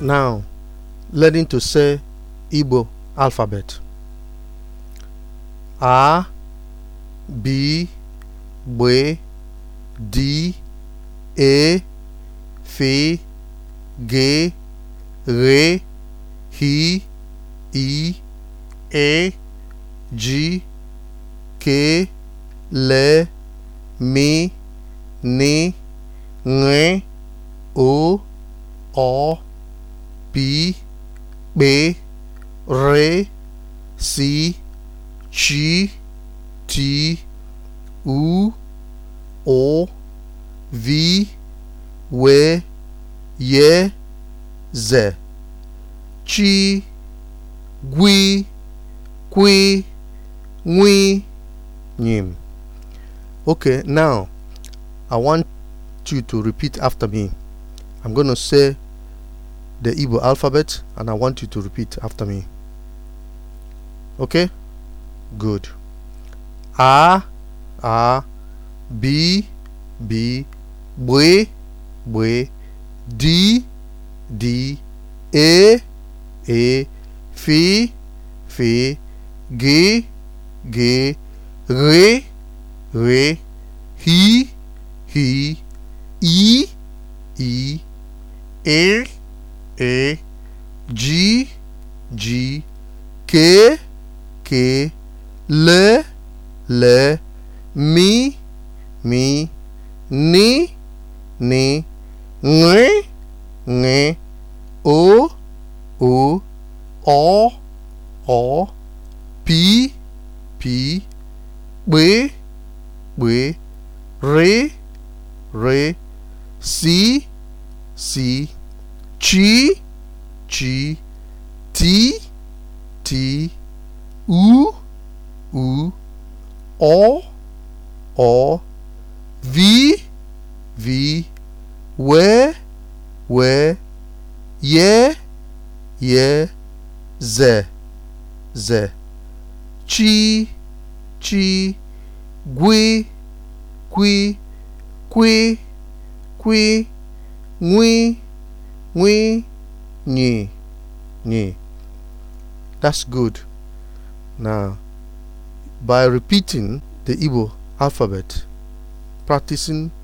now learning to say Igbo alphabet. A, B, B, D, E, F, G, R, H, I, E, G, K, L, M, N, N, O, O, B B R C G T U O V W J Z Chi Gwi Kwi Nwi Nyim Okay, now I want you to repeat after me. I'm going to say the Igbo alphabet and I want you to repeat after me. Okay? Good. A, A, B, B, B, B, D, D, A, e, A, e, F, F, G, G, R, R, H, H, E, E, L, E G G kee kee L L Mi Mi Ni Ni Ng Ng O O O O Pi Pi B B Re Re Si Si chi chi ti ti u u o o vi vi we we ye ye ze ze chi chi gwi gwi gwi gwi ngwi nwinyi nyi. That's good. Now, by repeating the Igbo alphabet, practicing